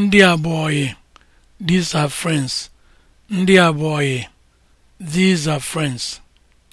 ndị abụọyị these are friends ndị abụọyị these are friends